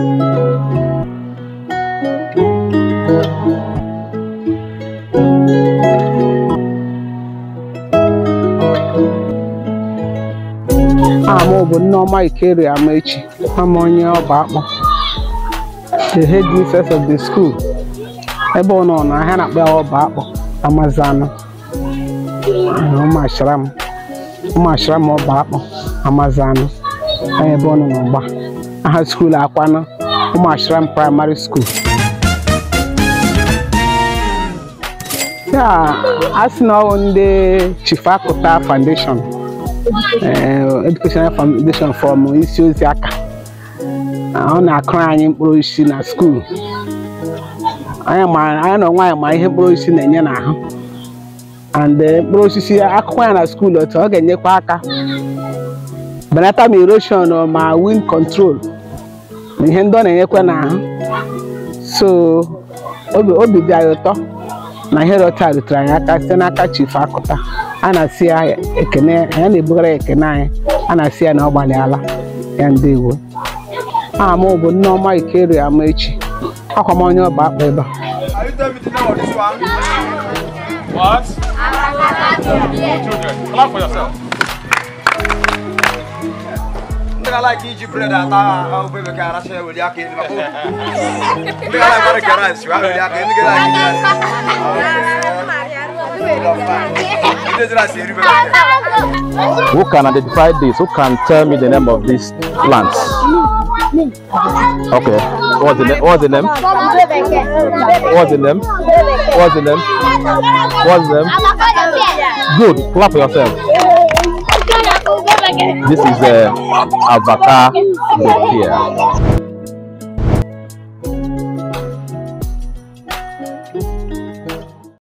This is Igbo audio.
ama ọ bụ Nneoma Ikere Amaechi ama onye ọba akpọ the head mistress of the school ebe ọ nọ na ahịa na-akpa ọba akpọ amazanụ ụmụashara m ọba akpọ amazanụ ebe ọ nọ n'ọgba aha skuulu akwanụ ụmụ ashram praịmarị skuul ya a sị na ọwụ ndị Chifakuta foundation eh, educational foundation fọm isi ozi aka ọ na-akụrụ anyị mkpụrụ osisi na skuulu anya na onwe anyị ma ihe mkpụrụ osisi na-enye n'ahụ and eh, mkpụrụ osisi akụkọ ya na skuulu otu ọ ga-enyekwa aka belata ma erosion ma wind control ma ihe ndị ọ na-enyekwa na so obi dị anyị ụtọ na ihe rọta rutere anyị aka site n'aka chief akụta a na-asị ya ekene anyị na-ebugara ya ekene anyị a na-asị ya na ọ gbalịala ya ndewo aha m bụ Nneọma Ikeru echi akwa m onye ọba akpa ebe a ndika la ki ji bread ata au bebe ka ara se weli ake ni mako ndika la bare ka rice wa Who can identify this? Who can tell me the name of these plants? Okay. What's the, what's the name? What's the name? What's the name? What's the name? What's the name? Good. Clap for yourself. This is a uh, avocado here.